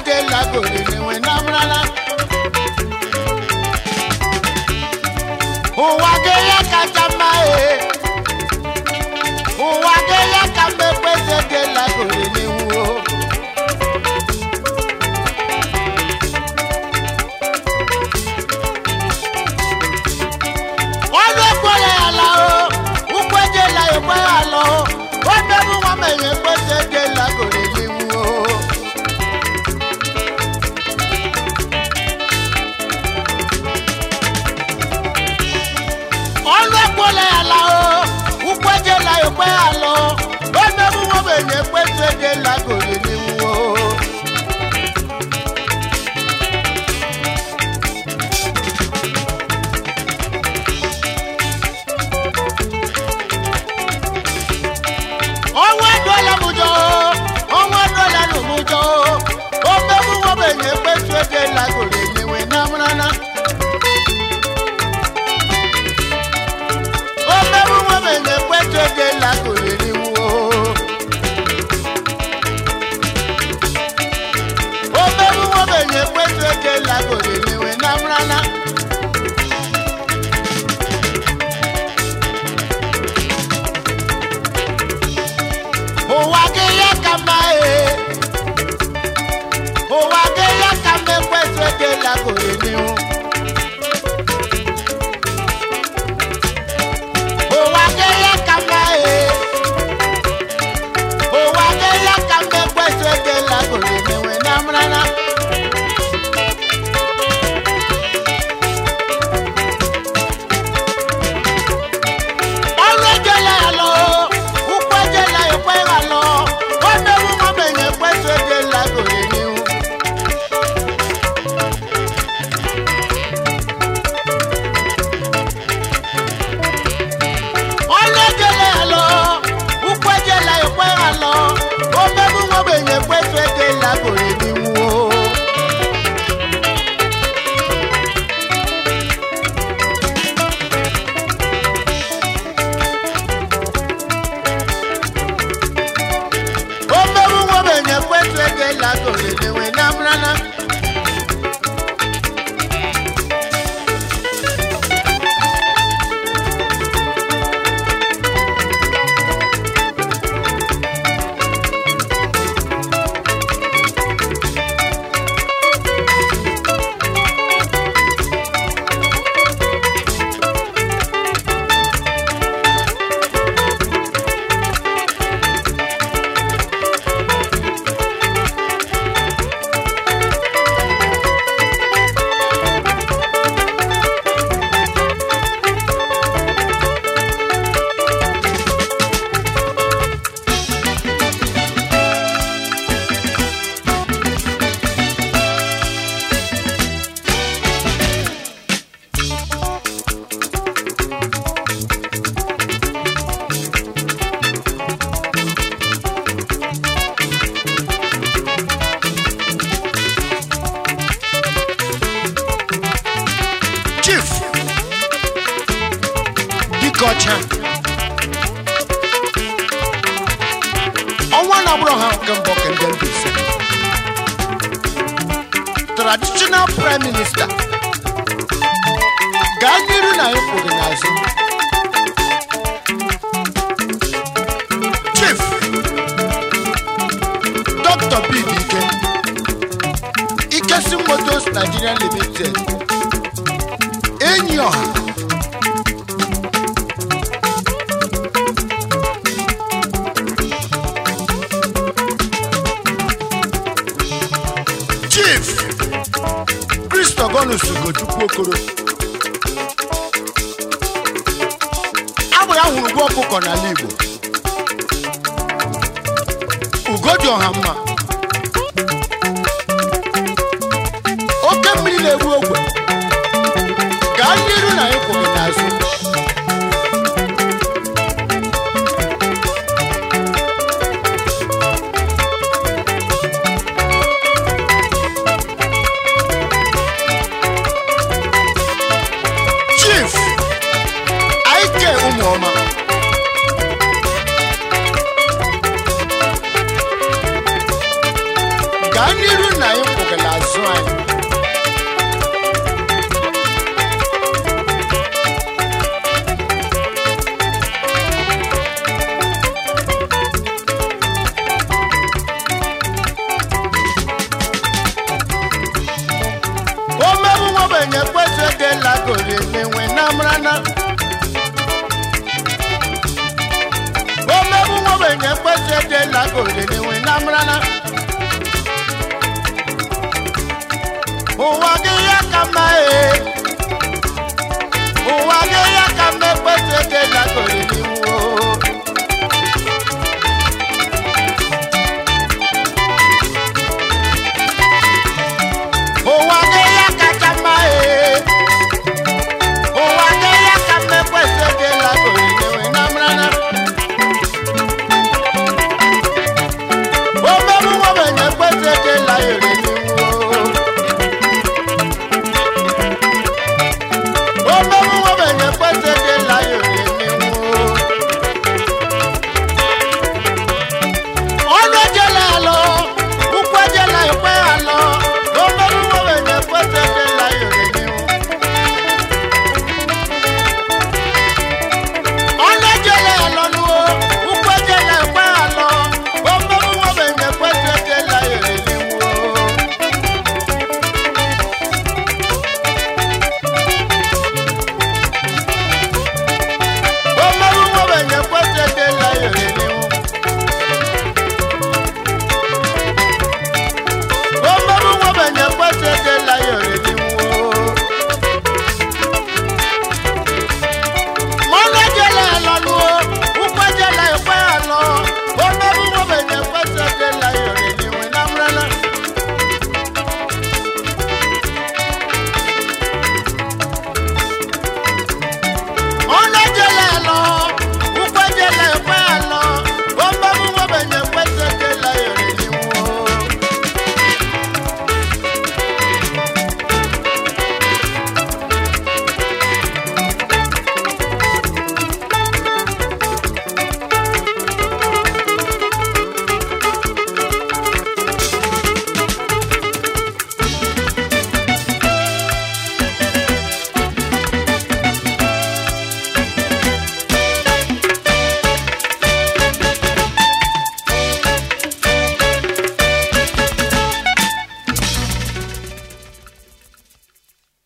edelagoriri wenabrala ụwa ga ya kacha mma e. Eh. dé lágòlè ni wọn. agbụrụ ha nke mbụ kendebs traditional prime minister gaa n'iru na ịkwụ gị n'azụ chief dr bid ike ikesi motos nigeria limited enyi ọha bonus Ugochukwu Okoro abụ ya hụrụ ụgwọ ọkụkọ n'ala Igbo ugo dị ọha mma oke mmiri na-egbu ogwe gaa iru na ịkwụ obodo na-enwe